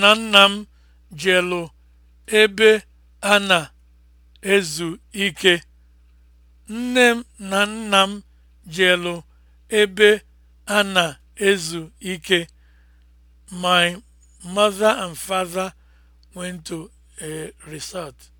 na nna m jelụ ebe a na-ezu ike. Nne m na nna m jelụ ebe a na-ezu ike. My mother and father went to a resort.